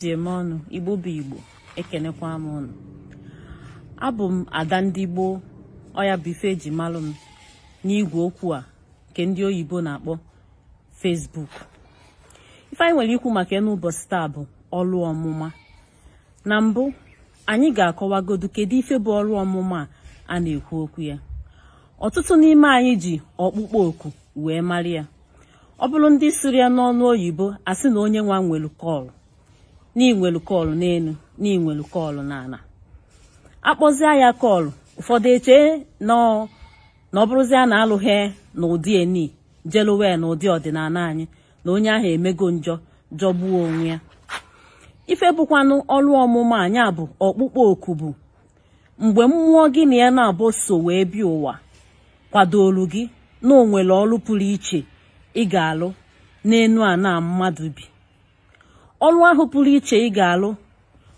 tie m ọnụ igbo bụ igbo ekenekwa m ụnụ abụ m ada ndị gboo ọya bife ji eji malụ m n'igwe okwu a nke ndị oyibo na-akpọ fesbuk ife anyị nwere ikwu maka ya ụbọchị taa bụ ọrụ ọmụma na mbụ anyị ga-akọwagodu kedu ife bụ ọrụ ọmụma a na-ekwu okwu ya ọtụtụ n'ime anyị ji ọkpụkpọ oku wee mara ya ọ bụrụ ndị siri ya n'ọnụ oyibo a sị na onye nwa nwere kọlụ n'inwelu kọlụ n'elu n'inwelu n'ala akpọzie ya kọlụ ụfọdụ eche na ọ bụrụzie na alụghị na eni jelowe na ụdị ọdịnala anyị na onye ahụ emego njọ jọgbuo onwe ya ife bụkwanụ ọrụ ọmụma anya bụ ọkpụkpọ oku bụ mgbe mmụọ gị na ya na-abụ so wee bịa ụwa kwadolu gị na onwere ọrụ pụrụ iche ị ga-alụ n'enu a na mmadụ bi ọrụ ahụ pụrụ iche ị ga-alụ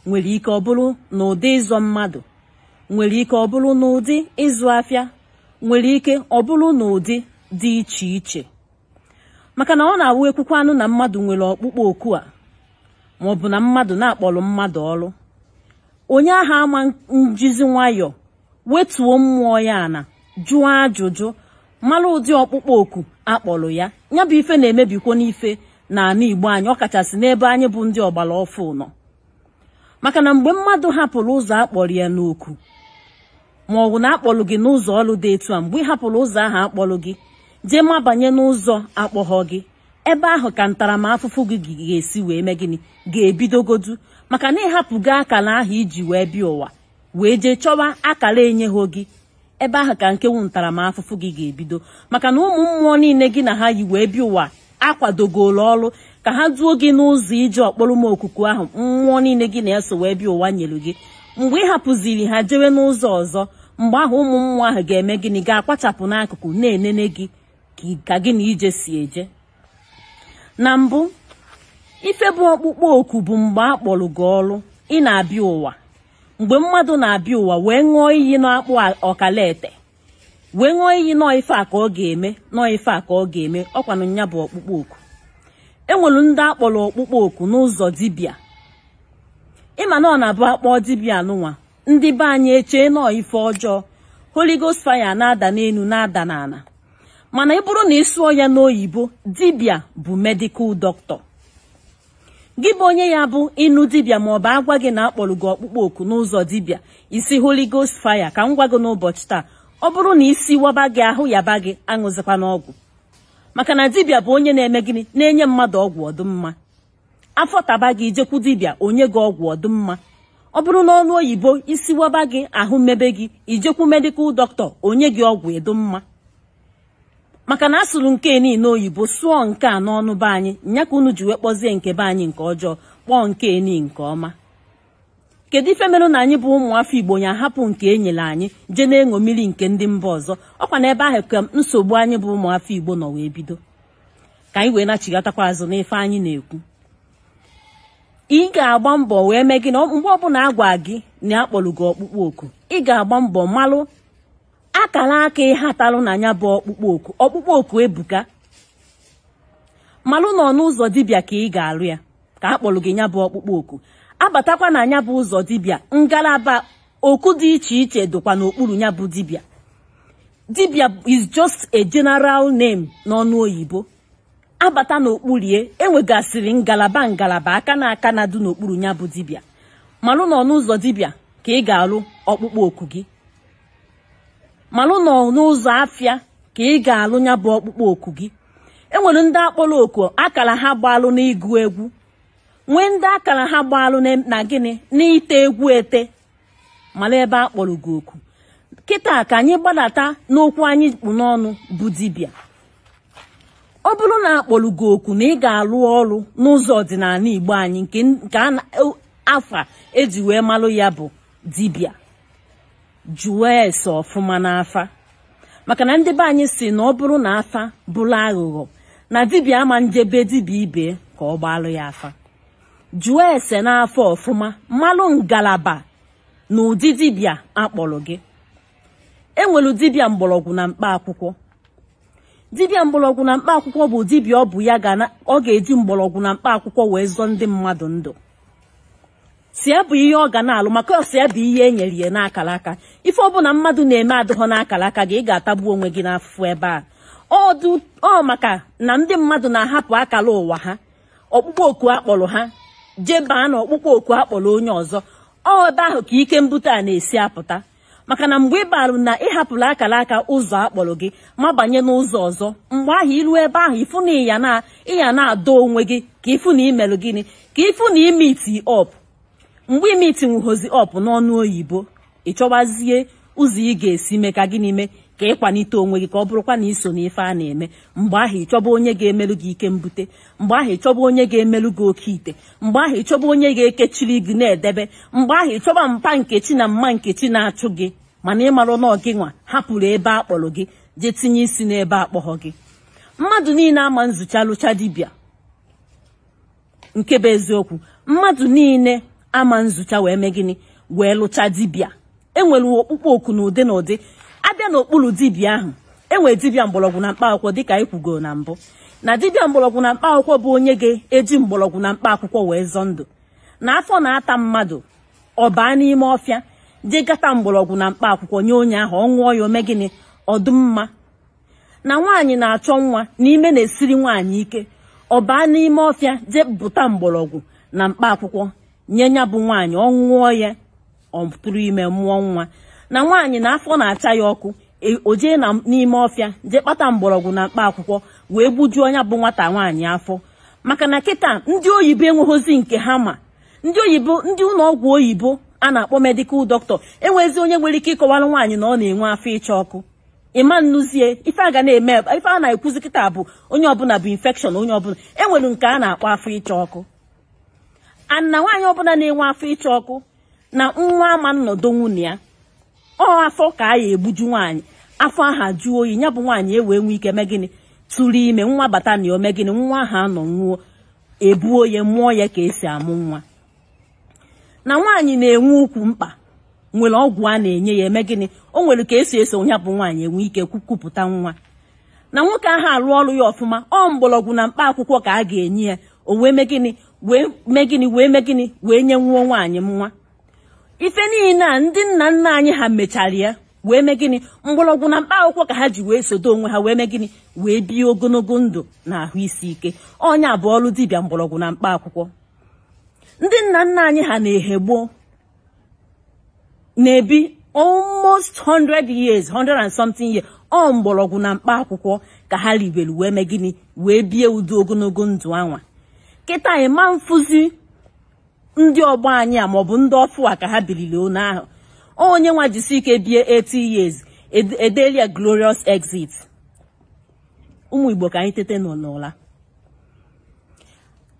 nwere ike ọ bụrụ n'ụdị ịzọ mmadụ nwere ike ọ bụrụ n'ụdị ịzụ afịa nwere ike ọ bụrụ n'ụdị dị iche iche maka na ọ na-awụ ekwukwe anụ na mmadụ nwere ọkpụkpọ oku a ma ọ bụ na mmadụ na-akpọrọ mmadụ ọrụ onye ahụ ama njizi nwayọọ wetuo mmụọ ya na jụọ ajụjụ mara ụdị ọkpụkpọ oku akpọrọ ya ya bụ ife na-emebikwo n'ife n'ala Igbo anyị ọkachasị n'ebe anyị bụ ndị ọgbara ọfụ nọ maka na mgbe mmadụ hapụrụ ụzọ akpọrọ ya n'oku ma ọ bụ na gị n'ụzọ ọrụ dị etu a mgbe ị hapụrụ ụzọ ahụ akpọrọ gị jee mabanye n'ụzọ akpọghọ gị ebe ahụ ka ntaramahụfụ gị ga-esi wee mee gịnị ga-ebidogodu maka na gị akara ahụ iji wee bịa ụwa wee jee chọwa akara enyeghị gị ebe ahụ ka nke wu ntaramahụfụ gị ga-ebido maka na ụmụ mmụọ niile gị na ha yi wee bịa ụwa akwadogolu ọrụ ka ha duo gị n'ụzọ ije ọkpọrọ m okuku ahụ mmụọ niile gị na eso wee bịa ụwa nyelu gị mgbe ị hapụziri ha jewe n'ụzọ ọzọ mgbe ahụ ụmụ mmụọ ahụ ga-eme gịnị ga-akpachapụ n'akụkụ na-enene gị ka gị na ije si eje na mbụ ife bụ ọkpụkpọ oku bụ mgbe a kpọrọ gị ọrụ ị na-abịa ụwa mgbe mmadụ na-abịa ụwa wee ṅụọ iyi n'akpụ ọkalaete. wee ṅụọ iyi nọọ ife a ka ọ ga-eme nọọ ife a ka ọ ga-eme ọkwanụ nya bụ ọkpụkpọ oku enwere ndị akpọrọ ọkpụkpọ oku n'ụzọ dibịa ịma na ọ na-abụ akpọ dibịa anụnwa ndị be anyị echee nọọ ife ọjọọ Holy Ghost na-ada n'elu na-ada n'ala mana ị bụrụ na ị sụọ ya n'oyibo dibịa bụ medikal doctor gị bụ onye ya bụ ịnụ dibịa ma ọ bụ agwa gị na akpọrọ gị ọkpụkpọ oku n'ụzọ dibịa isi holi Ghost fire ka m gwa gị n'ụbọchị taa ọ bụrụ na isi waba gị ahụ yaba gị aṅụzikwa n'ọgwụ maka na dibịa bụ onye na-eme gịnị na-enye mmadụ ọgwụ ọdụmma afọ taba gị jekwu dibịa onye gị ọgwụ ọdụmma ọ bụrụ na ọnụ oyibo isi waba gị ahụ mebe gị ijekwu medikal dọkịta onye gị ọgwụ ịdụmma maka na asụrụ nke niile oyibo sụọ nke a n'ọnụ be anyị nya ka unu ji wee kpọzie nke be anyị nke ọjọọ kpọọ nke ni nke ọma kedu ife merụ na anyị bụ ụmụafọ igbo ya ahapụ nke enyere anyị jee na-eṅo mmiri nke ndị mba ọzọ ọkwa na ebe ahụ ka nsogbu anyị bụ ụmụafọ igbo nọ wee bido ka anyị wee nachigatakwa azụ n'ife anyị na-ekwu ị ga-agba mbọ wee mee gị na mgbe ọbụla agwa gị na akpọrọ gị ọkpụkpọ oku ị ga-agba mbọ malụ akara aka ịhatalụ na ya bụ ọkpụkpọ oku ọkpụkpọ oku ebuka malụ na n'ụzọ dibia dibịa ka ị ga-alụ ya ka akpọrọ gị nya bụ ọkpụkpọ oku abatakwa na anya bụ ụzọ dibia, ngalaba oku dị iche iche dịkwa n'okpuru ya bụ dibịa dibịa is just a general name n'ọnụ oyibo abata n'okpurie enwegasịrị ngalaba ngalaba aka na aka na dị n'okpuru ya bụ dibịa malụ n'ọnụ ụzọ dibịa ka ị ga-alụ ọkpụkpọ oku gị malụ n'ọnụ ụzọ afịa ka ị ga-alụ ya ọkpụkpọ oku gị enwere ndị akpọrọ oku akara ha gbalụ n'ịgụ egwu nwee ndị akara ha gbalụ na gịnị n'ite egwu ete mara ebe a kpọrọ gị oku kịta ka anyị gbadata n'okwu anyị kpụ n'ọnụ bụ dibịa ọ bụrụ na kpọrọ gị oku na ị ga-alụ ọrụ n'ụzọ ọdịnala igbo anyị nke e afa eji wee malụ ya bụ dibịa jụọ ese ọfụma n'afa maka na ndị be anyị si na ọ bụrụ na afa bụrụ aghụghọ na dibịa ama njebe dibịa ibe ka ọ gbalụ ya afa jụọ ese n'afọ ọfụma mmalụ ngalaba na ụdị dibịa akpọrọ gị enwelu dibịa mgbọrọgwụ na mkpa akwụkwọ dibịa mgbọrọgwụ na mkpa akwụkwọ bụ dibịa ọ bụ ya ọ ga-eji mgbọrọgwụ na mkpa akwụkwọ wee zọ ndị mmadụ ndụ si bụ ihe ọ ga na-alụ maka si bụ ihe e nyere ya n'akara aka ife ọbụla mmadụ na-eme adịghọ n'akara aka gị ị ga-atagbu onwe gị n'afụfụ ebe a ọ maka na ndị mmadụ na-ahapụ akara ụwa ha ọkpụkpọ oku akpọrọ ha jee baa n'ọkpụkpọ oku akpọrọ onye ọzọ ọ ebe ahụ ka ike mbute a na-esi apụta maka na mgbe ị balụ na ịhapụrụ akara aka ụzọ akpọrọ gị ma banye n'ụzọ ọzọ mgbe ahụ ilu ebe ahụ ịfụ na ịya na ịya na-adọ onwe gị ka ịfụ na imelụ gịnị ka ịfụ na imiti ọp mgbe imiti nwuhozi ọp n'ọnụ oyibo ị chọwazie ụzọ ị ga-esi mee ka gịnị mee ka ịkwanite onwe gị ka ọ bụrụkwa na iso ife a na-eme mgbe ahụ ịchọba onye ga-emelụ gị ike mbute mgbe ahụ ịchọba onye ga-emelụ gị oke ite mgbe ahụ ịchọba onye ga-ekechiri gị na-edebe mgbe ahụ ịchọba mpa nkechi na mma nkechi na-achụ gị mana ịmarụ na ọgị nwa hapụrụ ebe a kpọrọ gị jee tinye isi n'ebe akpọghọ gị mmadụ niile ama nzucha lụcha dibịa nke bụ eziokwu mmadụ niile ama nzucha wee mee gịnị wee lụcha dibịa enwere okpukpe oku na ụdị na ụdị abịa n'okpuru dibịa ahụ enwere dibịa mgbọrọgwụ na mkpa akwụkwọ dịka anyị kwugoro na mbụ na dibịa mgbọrọgwụ na mkpa akwụkwọ bụ onye ga-eji mgbọrọgwụ na mkpa akwụkwọ wee zọọ ndụ na afọ na-ata mmadụ ọ baa n'ime ọfịa dị gata mgbọrọgwụ na mkpa akwụkwọ nye onye ahụ ọ ṅụọ ya ome gịnị ọdụmma na nwaanyị na-achọ nwa n'ime na-esiri nwaanyị ike ọ baa n'ime ọfịa jee bụta mgbọrọgwụ na mkpa akwụkwọ nye ya bụ nwaanyị ọ ṅụọ ya ọ ime mmụọ nwa na nwaanyị na afọ na-acha ya ọkụ e, o jee n'ime ọfịa jee kpata mgbọrọgwụ na mkpa akwụkwọ wee gbujuo onye bụ nwata nwaanyị afọ maka na kịta ndị oyibo enweghịzi nke ha ma ndị oyibo ndị ụlọ ọgwụ oyibo a na-akpọ medikal dọkịta enwezi onye nwere ike ịkọwara nwaanyị na ọ na-enwe afọ ịcha ọkụ ịma nnụzie ife a ga na-eme ife a na-ekwuzi kịta bụ onye ọbụla bụ infekshọn onye ọbụla enwere nke a na-akpọ afọ ịcha ọkụ na nwaanyị ọbụla na-enwe afọ ịcha ọkụ na nwa ama nnọdụ nwunye ya ọ afọ ka a ya egbuju nwaanyị afọ aha jụọ oyi ya bụ nwaanyị ewee nwee ike mee gịnị tụrụ ime nwa bata na ome gịnị nwa aha anọ nwụọ ebuo ya mụọ ya ka esi amụ nwa na nwaanyị na-enwe ukwu mkpa nwere ọgwụ a na-enye ya eme gịnị o nwere ka esi eso ya bụ nwaanyị enwe ike kwupụta nwa na nwoke ahụ arụ ọrụ ya ọfụma ọ mgbọrọgwụ na mkpa akwụkwọ ka a ga-enye ya o wee mee gịnị wee mee gịnị wee mee gịnị wee nye nwuo nwaanyị nwa ife niile a ndị nna nna anyị ha mechara ya wee mee gịnị mgbọrọgwụ na mkpa akwụkwọ ka ha ji wee sodo onwe ha wee mee gịnị wee bie ogologo ndụ na ahụ isi ike onye bụ ọrụ dibịa mgbọrọgwụ na mkpa akwụkwọ ndị nna nna anyị ha na-ehegboo na-ebi almost 100 years 100 and something years ọ mgbọrọgwụ na mkpa akwụkwọ ka ha ribere wee mee gịnị wee bie ụdị ogologo ndụ anwa kịta ịma mfụzi ndị ọgbọ anyị a maọbụ ndị ọfụ a ka ha biliri onu ahụ onye nwa jisi ike bie 80 years edelia glorious exit ụmụ igbo ka anyị tete n'ụla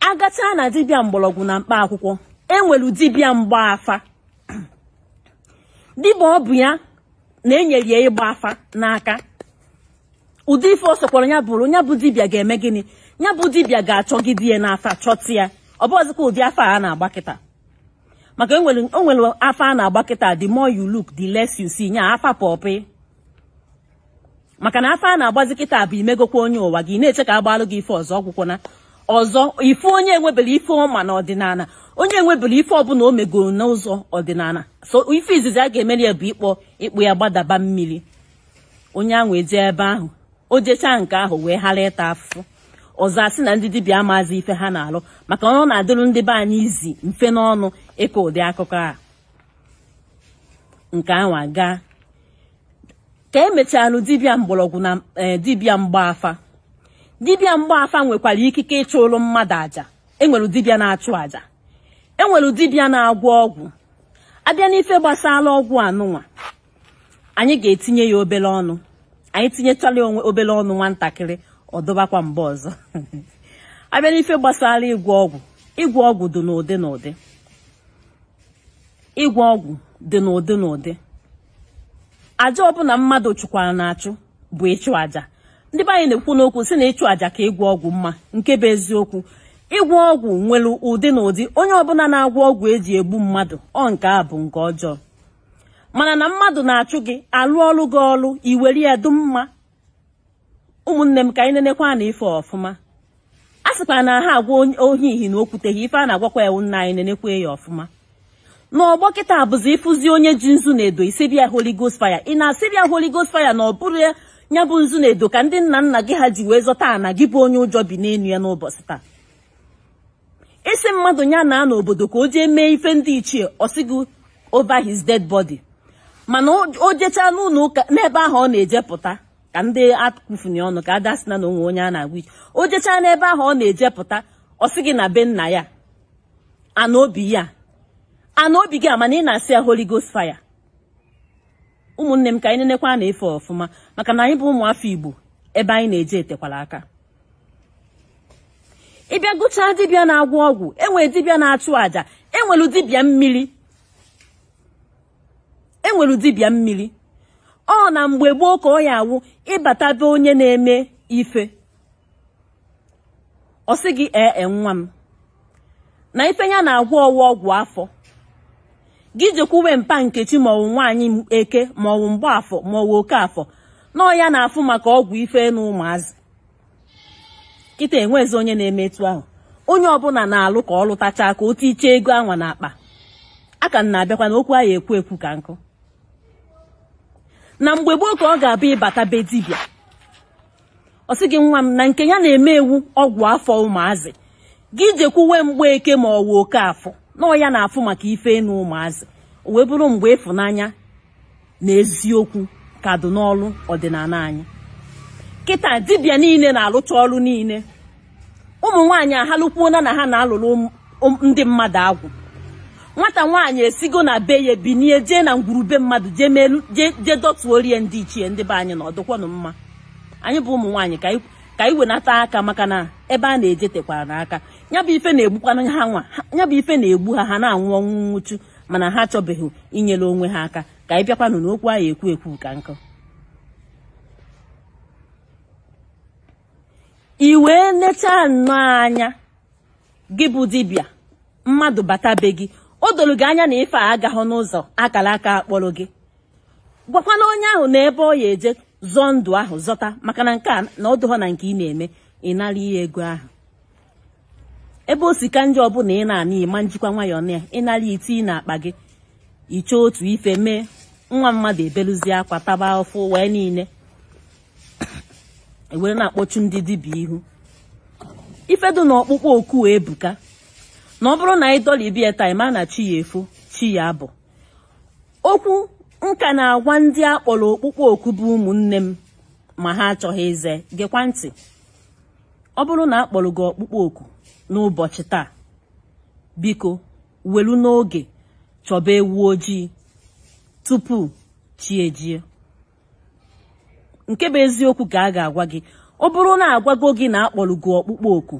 agachaa na dibịa mgbọrọgwụ na mkpa akwụkwọ enwere dibịa mgba afa dibịa ọ bụ ya na-enyere ya ịgba afa n'aka ụdị ife ọ sokwara ya bụrụ ya bụ dibịa ga-eme gịnị ya bụ dibịa ga di ya n'afa chọta ya ọ bụghịzikwa ụdị afọ a na-agba kịta maka o nwere afọ a na-agba kịta the more you look the less you see nya afa pọpị maka na afọ a na-agbazi kịta bụ imegokwa onye ụwa gị na-eche ka agbalụ gị ife ọzọ na ọzọ ife onye enwebere ife ọma na ọdịnala onye enwebere ife ọbụla o megoro n'ụzọ ọdịnala so ife izizi a ga-emeli ya bụ ịkpọ ịkpụ ya gbadaba mmiri onye ahụ eje ebe ahụ o jechaa nke ahụ wee ghara ịta afụfụ ọzọ asị na ndị dibịa amaazị ife ha na-alụ maka ọ na-adịrụ ndị be anyị izi mfe n'ọnụ ịkọ ụdị akụkọ a nke anwa gaa ka emechalụ dibịa mgbọrọgwụ na e, dibịa mgbaafa dibịa mgbaafa nwekwara ikike ịchụrụ mmadụ aja enwere dibịa na-achụ aja enwere dibịa na-agwọ ọgwụ abịa n'ife gbasara ọgwụ anụnwa anyị ga-etinye ya obere ọnụ anyị tinyechala onwe obere ọnụ nwatakịrị. ọ dọbakwa mgbe ọzọ abịa n'ife gbasara ịgwọ ọgwụ ịgwọ ọgwụ dị n'ụdị n'ụdị ịgwọ ọgwụ dị n'ụdị n'ụdị aja ọbụla mmadụ chụkwara na-achụ bụ ịchụ aja ndị be anyị na-ekwu n'okwu si na ịchụ aja ka ịgwọ ọgwụ mma nke bụ eziokwu ịgwọ ọgwụ nwere ụdị na ụdị onye ọbụla na-agwọ ọgwụ eji egbu mmadụ ọ nke a bụ nke ọjọọ mana na mmadụ na-achụ gị alụ ọlụ gị ọrụ iwere ya dum mma ụmụnne m ka anyị nenekwa na ife ọfụma a sịkwa na ha agwa ohi ihi na okwuteghị ife a na-agwakwa ewu nna anyị nenekwa ya ọfụma n'ọgbọ kịta bụzi ịfụzi onye ji nzu na edo isibia Holy gost fire ị na-asịbịa Holy Ghost fire na ọ bụrụ ya bụ nzu na edo ka ndị nna nna gị ha ji wee zọta ana gị bụ onye ụjọ bi n'enu ya n'ụbọchị taa isi mmadụ ya na n'obodo ka o jee mee ife ndị ichie osigo over his dead body mana o jechaa n'ụlọ ụka n'ebe ahụ ọ na-eje pụta ka ndị akụfuni ọnụ ka ada sị na onwe onye a na-agwa ike o jechaa n'ebe ahụ ọ na-eje pụta ọ sị gị na be nna ya ana obi ya ana obi gị amana ị na-asị ya holy ghost fire ụmụnne m ka anyị nenekwa na-efe ọfụma maka na anyị bụ ụmụafọ igbo ebe anyị na-eje etekwala aka ịbịa gụchaa dibịa na-agwọ ọgwụ enwere dibịa na-achụ àjà enwere dibịa mmiri enwere dibịa mmiri ọ na mgbe gboo ka ọ ya awụ ịbata onye na-eme ife ọ sị gị ee e, nwa m na ife ya na-agwọ ọwụ ọgwụ afọ gị jekwuwe mpa nkechi maọwụ nwaanyị eke maọwụ mgbaafọ maọwụ oke afọ na ọ ya na-afụ maka ọgwụ ife na ụmụazị kịta enwezi onye na-eme etu ahụ onye ọbụla na-alụ ka ọ lụtachaa ka o iche ego anwa n'akpa a ka m na-abịakwa na okwu ahụ ekwu ekwu ka nkụ na mgbe gboo ka ọ ga-abịa ịbata be dibịa ọ sị gị nwa m na nke ya na-eme ewu ọgwụ afọ ụmụazị gị jekwuwe mgbe eke ma ọ wụ oke afọ nọọ ya na-afụ maka ife ịnụ ụmụazị o wee bụrụ mgbe ịfụnanya na eziokwu ka dị n'ọlụ ọdịnala anyị kịta dibịa niile na-alụcha ọrụ niile ụmụ nwaanyị ahalụkwuona na ha na-alụrụ ndị mmadụ agwụ nwata nwaanyị esigo na be ya binie jee na ngwurube mmadụ jee melu jee dọtuo rie ndị ichie ndị be anyị na ọdụkwanụ mma anyị bụ ụmụ nwaanyị ka anyị wenata aka maka na ebe a na-eje tekwara n'aka ya bụ ife na-egbukwana ha nwa ya bụ ife na-egbu ha ha na-anwụ ọnwụ nwụchu mana ha achọbeghị inyere onwe ha aka ka anyị bịakwanụ n'okwu ahụ ekwu ekwu ka nkụ i wee nechaa nnọọ anya gị bụ dibịa mmadụ bata be gị o doro gị anya na ife a agaghị n'ụzọ akara aka akpọrọ gị gwakwana onye ahụ na ebe ọ ya eje zọọ ndụ ahụ zọta maka na nke a na ọdụghọ na nke ị na-eme ị nara ihe ego ahụ ebe o ka ndị ọbụla ị na-ana ịma njikwa nwayọọ na ya ịnara ite ị na-akpa gị iche otu ife mee nwa mmadụ ebelụzie akwa taba ọfụ wee niile ewere na-akpọchu ndị dibịa ihu ifedu na ọkpụkpọ oku ebuka na ọ bụrụ na anyị doli ibi ya taa ma na chi ya efo chi ya abụ okwu nka na-agwa ndị akpọrọ okpukpe oku bụ ụmụnne m ma ha achọghị ize gịkwa ntị ọ bụrụ na akpọrọ gị ọkpụkpọ oku n'ụbọchị taa biko welu n'oge chọba ewu ojii tupu chi ejie nke bụ eziokwu ka a ga-agwa gị ọ bụrụ na agwago gị na akpọrọ gị ọkpụkpọ oku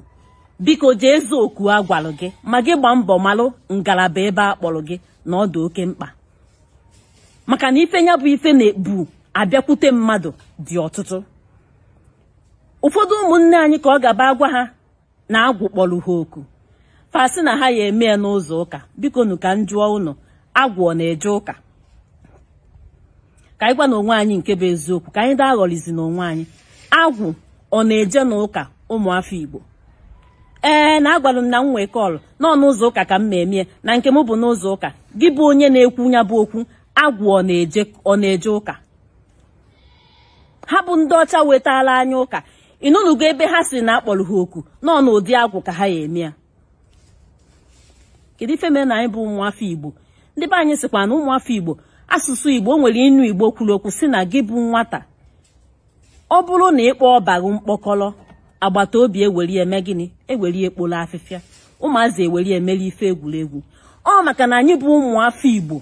biko jee oku a gwalụ gị ma gị gbaa mbọ malụ ngalaba ebe a kpọrọ gị na ọ dị oke mkpa maka na ife ya bụ ife na-ebu abịakwute mmadụ dị ọtụtụ ụfọdụ ụmụnne anyị ka ọ gaba agwa ha na agwụ kpọrọ ha oku fasị na ha ya eme ya n'ụzọ ụka biko na ka m jụọ agwụ ọ na-eje ụka ka anyị gwa n'onwe onwe anyị nke bụ eziokwu ka anyị daa aghọlizi na anyị agwụ ọ na-eje n'ụka ụmụafọ Igbo ee na agwalụ m na m nwee kọlụ n'ọnụ ụzọ ụka ka m memie na nke m bụ n'ụzọ ụka gị bụ onye na-ekwu nya bụ okwu agwụ ọ na-eje ụka ha bụ ndị ọcha wetala anya ụka ịnụnụgo ebe ha si na akpọrọ ha oku n'ọnụ ụdị agwụ ka ha ya eme ya kedu ife mere na anyị bụ ụmụafọ igbo ndị be anyị sịkwa na ụmụafọ igbo asụsụ igbo nwere inu igbo kwuru okwu si na gị bụ nwata ọ bụrụ na ịkpọ ọbaghị mkpọkọlọ agbata obi eweli eme gịnị eweli ekpolo afịfịa ụmụazị eweli emeli ife egwuregwu ọ maka na anyị bụ ụmụafọ igbo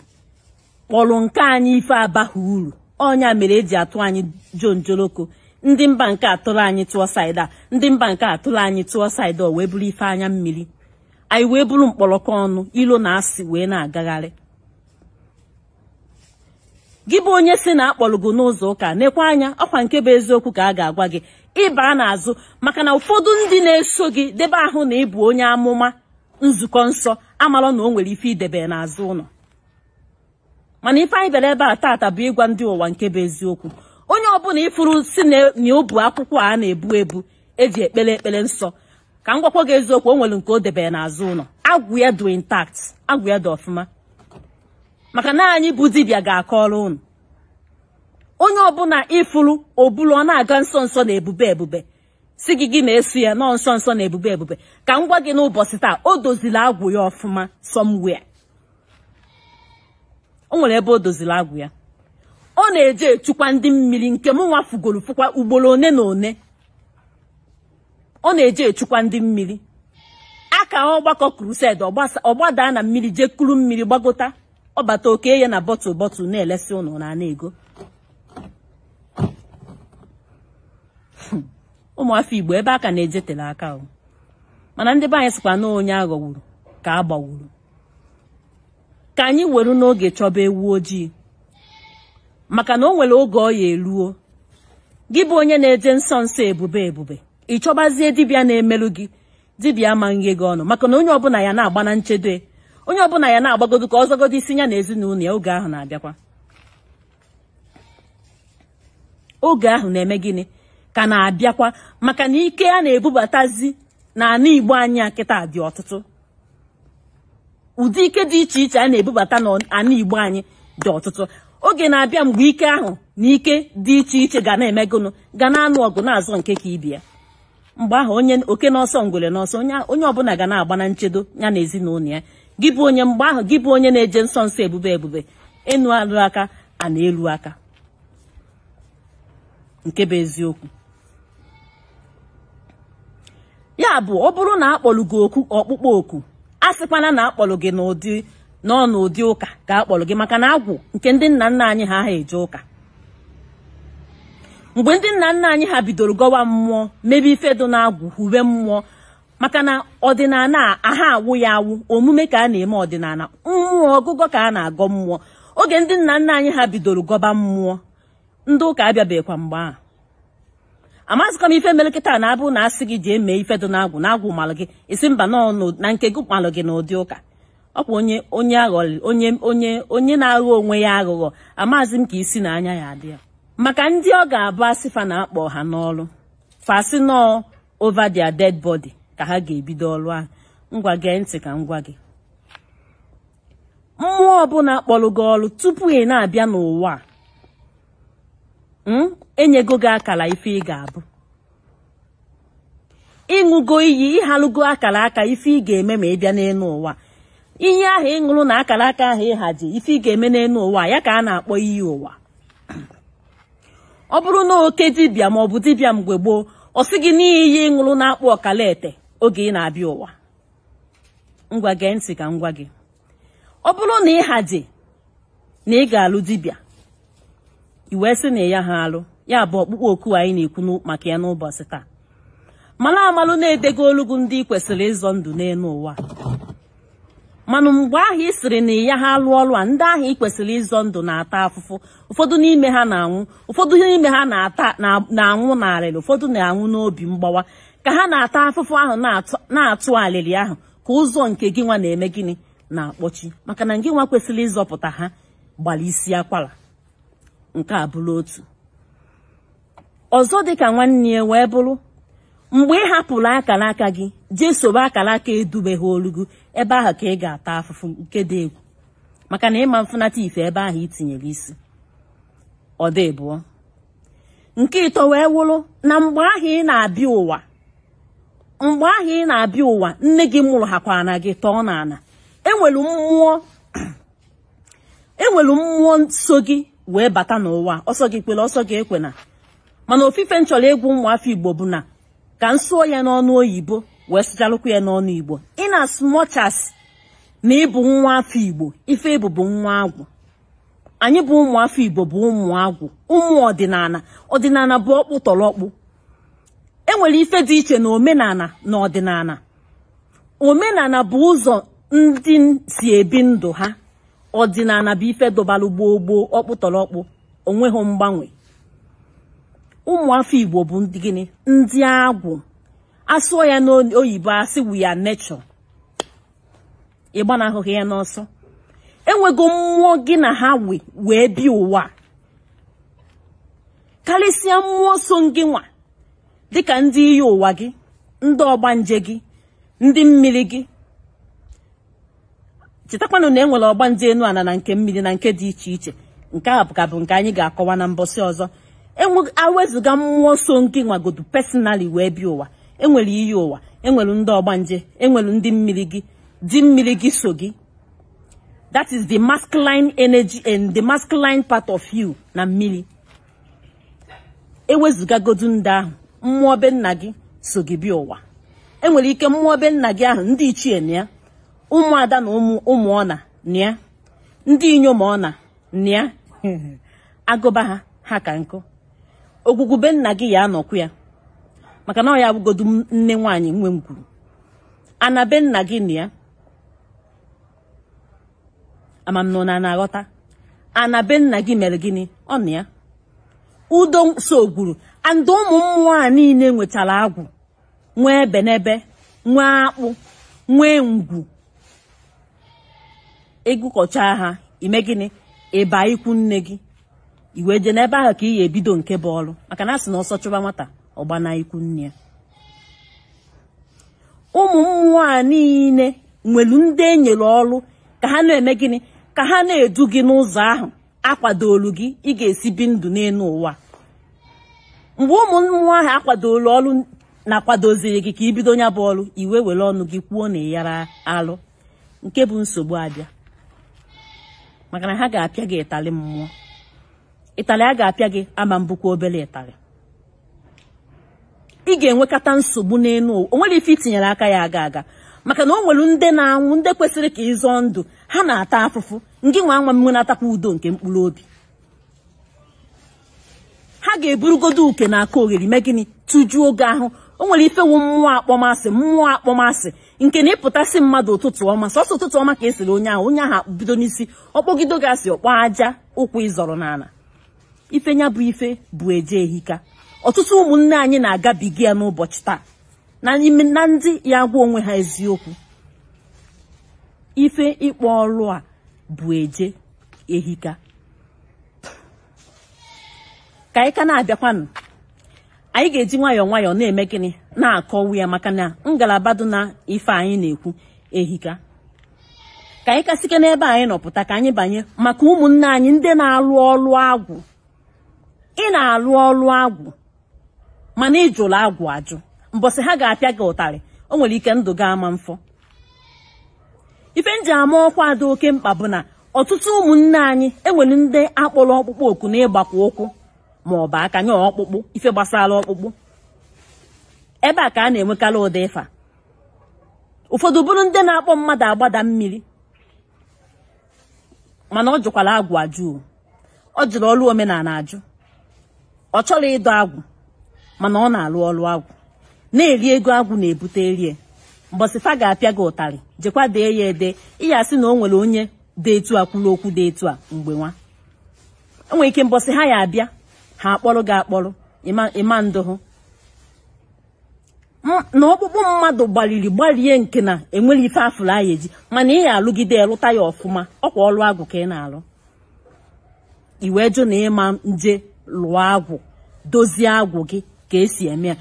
kpọrọ nke anyị ife abaghị uru ọnya mere eji atụ anyị jonjoloko ndị mba nke atụrụ anyị tụọ saịda ndị mba nke atụrụ anyị tụọ saịda o wee bụrụ ife anya mmiri anyị wee bụrụ mkpọrọkọ ọnụ ilo na asị wee na-agagharị gị bụ onye si na akpọrọ n'ụzọ ụka nekwa anya ọkwa nke bụ eziokwu ka a ga-agwa gị na n'azụ maka na ụfọdụ ndị na-eso gị debe ahụ na ịbụ onye amụma nzukọ nsọ amalọ na o nwere ife idebe n'azụ ụlọ mana ife anyị bịara ebe a tata bụ ịgwa ndị ụwa nke bụ eziokwu onye ọbụla ifuru si na obu akwụkwọ a na-ebu ebu eji ekpere ekpere nsọ ka m gị eziokwu o nwere nke o debere n'azụ ụlọ agwụ ya dị intact agwụ ya dị ọfụma maka na anyị bụ dibịa ga-akọrọ ụnụ onye ọbụla ịfụrụ obulu ọ na-aga nso nso na ebube ebube si gị gị na-eso ya nọọ nso nso na ebube ebube ka m gwa gị n'ụbọchị taa o doziri agwụ ya ọfụma somewhere o nwere ebe o doziri agwụ ya ọ na-eje echukwa ndị mmiri nke m nwafugoro fụkwa ugboro one na one ọ na-eje echukwa ndị mmiri aka ọgbakọ krused ọgbada na mmiri jee kuru mmiri gbagota ọbata oke ya na bọtụl bọtụl na-elesi ụnụ na ana ego ụmụafọ igbo ebe aka na-ejetele aka ahụ mana ndị be anyị sịkwa na onye aghọgburu ka a gbagburu ka anyị weru n'oge chọba ewu ojii maka na o nwere oge ọ ya eruo gị bụ onye na-eje nsọ nsọ ebube ebube ị chọbazie dibịa na-emerụ gị dibịa amaghị gị ọnụ maka na onye ọbụla ya na-agba na nchedo e, onye ọbụla ya na-agbagodo ka ọzọgodo isi ya na ezinụlọ ya oge ahụ na-abịakwa oge ahụ na-eme gịnị ka na-abịakwa maka na ike a na-ebubatazi ana Igbo anyị a kịta dị ọtụtụ ụdị ike dị iche iche a na-ebubata na ana Igbo anyị dị ọtụtụ oge na-abịa mgbe ike ahụ na ike dị iche iche ga na emegonụ ga na-anụ ọgụ na-azọ nke ka ya mgbe ahụ onye oke n'ọsọ ngwere n'ọsọ onye ọbụla ga na-agba na nchedo ya na ezinụlọ ya gị bụ onye mgbe ahụ gị bụ onye na-eje nsọ nsọ ebube ebube ịnụ alụ aka a na-elu aka nke bụ eziokwu ya bụ ọ bụrụ na akpọlụ gị oku ọkpụkpọ oku a sịkwana na akpọlụ gị n'ụdị nọ n'ụdị ụka ka akpọlụ gị maka na agwụ nke ndị nna nna anyị ha ha eje ụka mgbe ndị nna nna anyị ha bidoro gọwa mmụọ mebe ife dị na-agwụ uwe mmụọ maka na ọdịnala aha awụ ya awụ omume ka a na-eme ọdịnala mmụọ ọgụgọ ka a na-agọ mmụọ oge ndị nna nna anyị ha bidoro gọba mmụọ ndị ụka abịabeghịkwa mgbe ahụ amazịkwa m ife mere na-abụ na asị gị ji eme ife dị n'agwụ n'agwụ malụ gị isi mba nọ na nke gị malụ gị n'ụdị ụka ọ bụ onye onye aghọrị onye onye onye na-aghọ onwe ya aghụghọ amazị m ka isi na anya ya adị maka ndị ọ ga-abụ asịfa na-akpọ ha n'ọrụ fasi nọọ over dia dead bọdi ka ha ga-ebido ọrụ ahụ ngwa gee ntị ka gwa gị mmụọ ọbụla kpọrọ gị ọrụ tupu ị na-abịa n'ụwa a. Hmm? enyego gị akara ife ị ga-abụ ịṅụgo iyi ịhalụgo akara aka ife ị ga-eme ma ị bịa n'elu ụwa ihe ahụ ịṅụrụ na akara aka ahụ ịhaji ife ị ga-eme n'elu ụwa ya ka a na-akpọ iyi ụwa ọ bụrụ na oke dibịa ma ọ bụ dibịa mgbe gboo ọ sị gị n'ihi ihe ịṅụrụ na-akpọ ọkala ete oge ị na-abịa ụwa ngwa gee ntị ka ngwa gị ọ bụrụ na ịhaji na ị ga-alụ dibịa i wee sị na ya ha alụ ya bụ ọkpụkpọ oku anyị na-ekwu maka ya n'ụbọchị taa mana amalụ na-edego olugu ndị kwesịrị ịzọ ndụ n'elu ụwa mana mgbe ahụ ị sịrị na ya ha alụ ọrụ a ndị ahụ ị kwesịrị ịzọ ndụ na-ata afụfụ ụfọdụ n'ime ha na-anwụ ụfọdụ n'ime ha na na-anwụ n'alịlị ụfọdụ na-anwụ n'obi mgbawa ka ha na-ata afụfụ ahụ na-atụ alịlị ahụ ka ụzọ nke gị nwa na-eme gịnị na-akpọchi maka na gị nwa kwesịrị ịzọpụta ha gbara isi akwara nke a bụrụ otu ọzọ dịka nwanne ya wee bụrụ mgbe ị hapụrụ akara aka gị jee akara aka edubeghị olugu ebe ahụ ka ị ga-ata afụfụ nke dị egwu maka na ịma mfụnata ife ebe ahụ itinyere isi ọ dị bụọ nke ịtọ wee wụrụ na mgbe ahụ ị na-abịa ụwa mgbe ahụ ị na-abịa ụwa nne gị mụrụ na gị tọọ na-ana enwere mmụọ enwere e mmụọ nso gị wee bata n'ụwa ọsọ gị kpere ọsọ gị ekwena mana ofufe m chọrọ ụmụafọ igbo bụ na ka m sụọ ya n'ọnụ oyibo wee sụchalụkwa ya n'ọnụ igbo ịna as na ịbụ nwa afọ igbo ife ịbụ bụ nwa agwụ anyị bụ ụmụafọ igbo bụ ụmụ agwụ ụmụ ọdịnala ọdịnala bụ ọkpụ tọrọkpụ enwere ife dị iche na omenala na ọdịnala omenala bụ ụzọ ndị si ebi ndụ ha ọdịnala bụ ife dọbalụ gboo gboo ọkpụtọrọkpụ onweghị mgbanwe ụmụafọ igbo bụ ndị gịnị ndị agwụ asụọ ya n'oyibo asị wu ya nechọ ịgbanahụghị ya n'ọsọ enwego mmụọ gị na ha wee bi ụwa karịsịa mmụọ so gị nwa dịka ndị iyi ụwa gị ndị ọgbanje gị ndị mmiri gị chetakwanụ na e nwere ọgba ndị enu ana na nke mmiri na nke dị iche iche nke a ka bụ nke anyị ga-akọwa na mbọsị ọzọ e awezụga mmụọ nsọ nke nwagodu pesinali wee bịa ụwa enwere iyi ụwa enwere ndị ọgbanje enwere ndị mmiri gị dị mmiri gị so gị that is the masculine energy and the masculine part of you na mmiri ewezụgagodu ndị ahụ mmụọ be nna gị so gị bịa ụwa enwere ike mmụọ be nna gị ahụ ndị ichie na ya ụmụada na ụmụ ọna nịa ndị inyom ọna nịa agụba ha ha ka nkụ ogwugwu nna gị ya anọkwu ya maka na ọ ya abụgodu nne nwaanyị nwe m kwuru nna gị nịa amamnọ na na-aghọta ana nna gị mere gịnị ọ nịa udo so gwuru andị ụmụ mmụọ a niile nwetara agwụ nwee benebe nwee akpụ nwee ngwu ịgụkọcha ha ime gịnị ịba ikwu nne gị iwe jee n'ebe ahụ ka ị ya ebido nke bụ ọrụ maka na asị na ọsọ chụba nwata ọgbana ikwu nne ya ụmụ mmụọ a niile nwere ndị enyere ọrụ ka ha na-eme gịnị ka ha na-edu gị n'ụzọ ahụ akwadolu gị ị ga-esi bi ndụ n'elu ụwa mgbe ụmụ mmụọ ahụ akwadolu ọrụ na-akwadoziri gị ka ibido nya bụ ọrụ iwe were ọnụ gị kwuo na ịyara alụ nke bụ nsogbu abịa maka na ha ga-apịa gị ịtalị mmụọ ịtalị a ga-apịa gị ama mbụkwa obere ịtalị ị ga-enwekata nsogbu n'elu o nwere ife itinyere aka ya aga aga maka na o nwere ndị na-anwụ ndị kwesịrị ka ịzọ ndụ ha na-ata afụfụ ngị nwa nwa mmụ na-atakwa udo nke mkpụrụ obi ha ga-eburugodo uke na aka oghere mee gịnị tụjuo oge ahụ o nwere ife wu mmụọ akpọmasị mmụọ akpọmasị nke na ịpụtasị mmadụ ụtụtụ ọma sọsọ ụtụtụ ọma ka esiri onye ahụ onye ahụ bido n'isi ọkpọgido gasị ọkpọ aja ụkwụ ịzọrọ n'ala ife nya bụ ife bụ eje ehika ọtụtụ ụmụnne anyị na-agabiga ya n'ụbọchị taa na na ndị ya gwa onwe ha eziokwu ife ịkpọ ọrụ a bụ eje ehika ka anyị ka na-abịakwanụ anyị ga-eji nwayọọ nwayọọ na-eme gịnị na-akọwu ya maka na ngalaba dị na ife anyị na-ekwu ehika ka anyị kasike n'ebe anyị nọpụta ka anyị banye maka ụmụnne anyị ndị na-alụ ọlụ agwụ ị na-alụ ọlụ agwụ mana ị jụrụ agwụ ajụ mbọsị ha ga-apịa gị ụtarị o nwere ike ndụ gị ama mfọ ife nji ama ọkwa dị oke mkpa bụ na ọtụtụ ụmụnne anyị enwere ndị akpọrọ ọkpụkpọ oku na ịgbakwa ụkwụ ma ọ bụ aka nye ọkpụkpụ ife gbasara ọkpụkpụ ebe a ka a na-enwekarị ụdị ịfa ụfọdụ bụrụ ndị na-akpọ mmadụ agbada mmiri mana ọ jụkwara agwụ ajụ ọ jụrụ ọrụ omenala ajụ ọ chọrọ ịdọ agwụ mana ọ na-alụ ọrụ agwụ na-eri ego agwụ na-ebute erie mbọsịfa ga-apịa gị ụtarị jekwa dee ya ede ịya sị na o nwere onye dị etu a kwuru okwu dị etu a mgbe nwa enwere ike mbọsị ha ya abịa ha akpọrọ gị akpọrọ ịma ndụ hụ na ọkpụkpụ mmadụ gbaliri gbalie nke na enwere ife afụrụ anya eji mana ị alụgide lụta ya ọfụma ọkwa ọrụ agwụ ka ị na-alụ iwe jụ na ịma nje lụọ agwụ dozie agwụ gị ka esi eme ya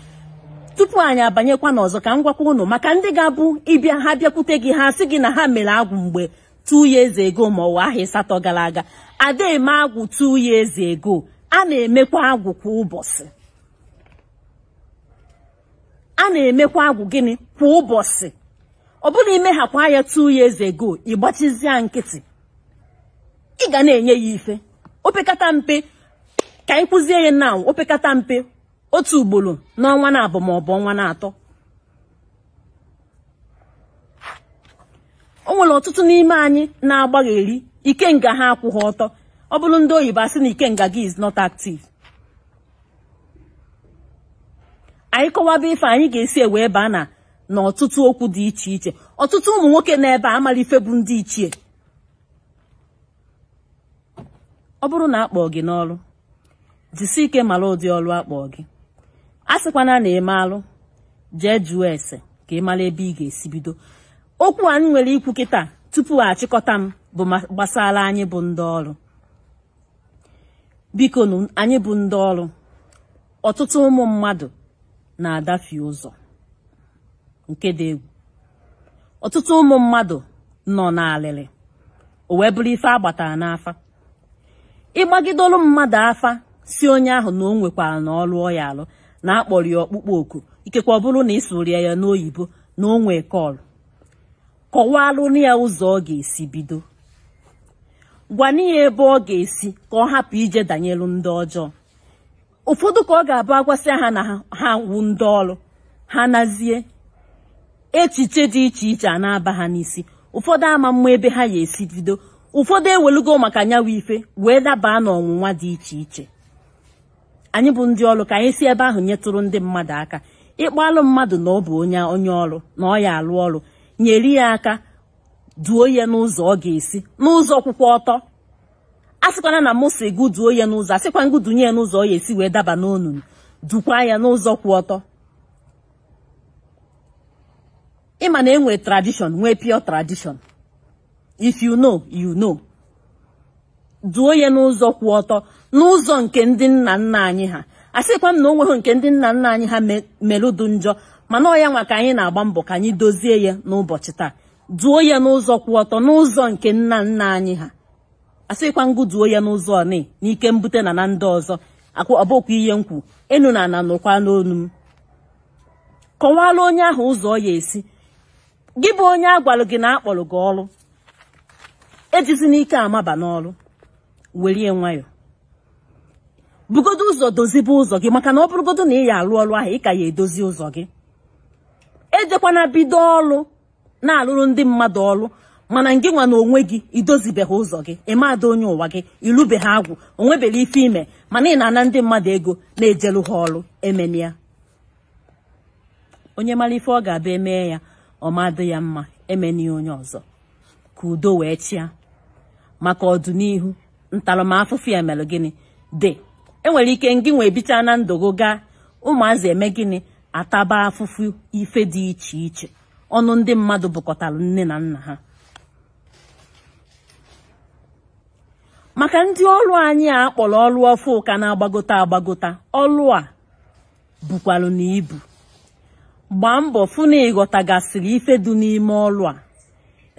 tupu anyị abanyekwa n'ọzọ ka m gwakwa unu maka ndị ga-abụ ịbịa ha bịakwute gị ha sị gị na ha mere agwụ mgbe two years ego ma ọwa ahịa ịsatọ gara aga ada eme agwụ two years ego. a na-emekwa agwụ kwa ụbọchị a na-emekwa agwụ gịnị kwa ụbọchị ọ bụrụ imehakwa ya two years go ịgbachizia nkịtị ị ga na-enye ya ife opekata mpe ka anyị kụzie ya na opekata mpe otu ugboro n'ọnwa na-abụ maọbụ ọnwa na-atọ o nwere ọtụtụ n'ime anyị na-agbagheri nga ha akwụghị ọtọ ọ bụrụ ndị oyibo asị na ikenga gị is not active anyị kọwaba ife anyị ga-esi ewe baa a na na ọtụtụ okwu dị iche iche ọtụtụ ụmụ nwoke n'ebe a amara ife bụ ndị ichie ọ bụrụ na akpọọ gị n'ọrụ jisi ike mara ụdị ọrụ akpọọ gị a sịkwana na eme alụ jee jụọ ese ka ị mara ebe ị ga-esi bido okwu anyị nwere ikwu kịta tupu achịkọta m bụ gbasara anyị bụ ndị ọrụ biko nụ anyị bụ ndị ọrụ ọtụtụ ụmụ mmadụ na-adafi ụzọ nke dị egwu ọtụtụ ụmụ mmadụ nọ n'alịlị o wee bụrụ ife agbatara n'afa ịgbagidolu mmadụ afa si onye ahụ na o nwekwara na ọ lụọ ya alụ na akpọrọ ya ọkpụkpọ oku ikekwa ọ bụrụ na ị sụrịa ya n'oyibo na o nwee kọlụ kọwalụ na ya ụzọ ọ ga-esi bido gwanye ya ebe ọ ga-esi ka ọ hapụ ije danyelụ ndị ọjọọ ụfọdụ ka ọ ga-abụ agwasị ha na ha wu ndị ọrụ ha nazie echiche dị iche iche a na-aba ha n'isi ụfọdụ ama mma ebe ha ya esi bido ụfọdụ ewelugo maka anyanwụ ife wee dabaa n'ọnwụnwa dị iche iche anyị bụ ndị ọrụ ka anyị si ebe ahụ nyetụrụ ndị mmadụ aka ịkpalụ mmadụ na ọ bụ onye onye ọrụ na ọ ya alụ ọrụ nyere ya aka duo ya n'ụzọ ọ ga-esi n'ụzọ kwụkwọ ọtọ a sịkwana na mụsị gụ duo ya n'ụzọ asịkwa ngụ dunye ya n'ụzọ ọ ga-esi wee daba n'onunu dukwa ya n'ụzọ kwụ ọtọ ịma na enwe tradishọn nwee pure tradishọn if you know you know duo ya n'ụzọ kwụ ọtọ n'ụzọ nke ndị nna nna anyị ha asịkwa m na o nweghị nke ndị nna nna anyị ha melụdụ njọ mana ọ ya nwa ka anyị na-agba mbọ ka anyị dozie ya n'ụbọchị taa duo ya n'ụzọ kwụ ọtọ n'ụzọ nke nna nna anyị ha asịkwa ngụ duo ya n'ụzọ ọnị n'ike mbute na na ndị ọzọ ọbụkwa ihe nkwu enu na ana nụkwa n'onu m Kọwaala onye ahụ ụzọ ọ ya esi gị bụ onye a gwara gị na akpọrọ gị ọrụ ejizi n'ike amaba n'ọrụ werie nwayọ bugodo ụzọ dozibe ụzọ gị maka na ọ bụrụgodo na ị ya alụ ọrụ ahụ ị ka ya edozi ụzọ gị ejekwana bido ọrụ na-alụrụ ndị mmadụ ọrụ mana ngị nwa na onwe gị idozibeghị ụzọ gị ịmada onye ụwa gị irubeghi agwụ onwebeghị ife ime mana ị na-ana ndị mmadụ ego na-ejelu ha ọrụ ya. onye mara ife ọ ga-abịa emee ya ọmadụ ya mma ya onye ọzọ ka udo wee chịa maka ọdịnihu ntaramahụfụ ya mere gịnị dị enwere ike ngị nwa ebicha na gị gaa ụmụazị eme gịnị ataba afụfụ ife dị iche iche ọnụ ndị mmadụ bụkọtara nne na nna ha maka ndị ọrụ anyị a kpọrọ ọrụ ọfụ ụka na-agbagota agbagota ọrụ a bukwara na ibu gbaa mbọ fụ na ịghọtagasịrị ife dị n'ime ọrụ a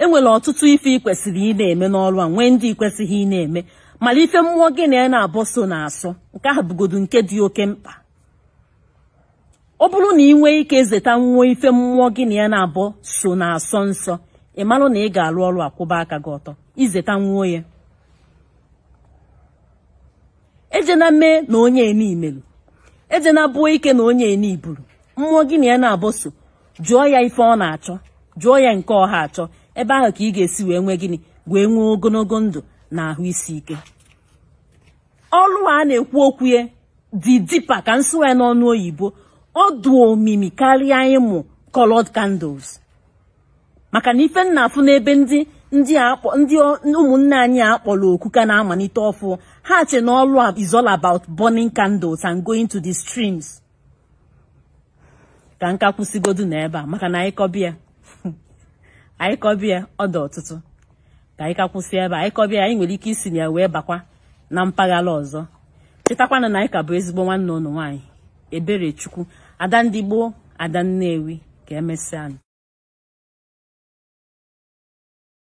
enwere ọtụtụ ife ị kwesịrị ị na-eme n'ọrụ a nwee ndị ikwesịghị ị na-eme mara ife mmụọ gị na ya na-abọ so na asọ nke ahụ bụgodu nke dị oke mkpa ọ bụrụ na ị nwee ike zeta nwụọ ife mmụọ gị na ya na abụọ so na asọ nsọ ị marụ na ị ga-alụ ọrụ akwụba aka gị ọtọ izeta nwụọ ya ejena mee na onye ene meru ejena bụọ ike na onye ene iburu mmụọ gị na ya na-abụ so jụọ ya ife ọ na-achọ jụọ ya nke ọha achọ ebe ahụ ka ị ga-esi wee nwee gịnị wee nwee ogologo ndụ na ahụ isi ike ọrụ a na-ekwu okwu ya dị dipa ka ya n'ọnụ oyibo ọ omimi karịa ịmụ colored candles maka na ife nna afụ n'ebe ndị ndị ndị ụmụnne anyị akpọrọ oku ka na-amalite ọfụ ha che na ọlụ is all about burning candles and going to the streams ka nka kwụsịgodu n'ebe a maka na anyị kọbịa anyị ọ dị ọtụtụ ka anyị ka kwụsị ebe a anyị nwere ike isi na ya wee bakwa na mpaghara ọzọ chetakwana na anyị ka bụ ezigbo nwanne ụnụ nwaanyị ebere chukwu ada ndị gboo ada nnewi ka emesịa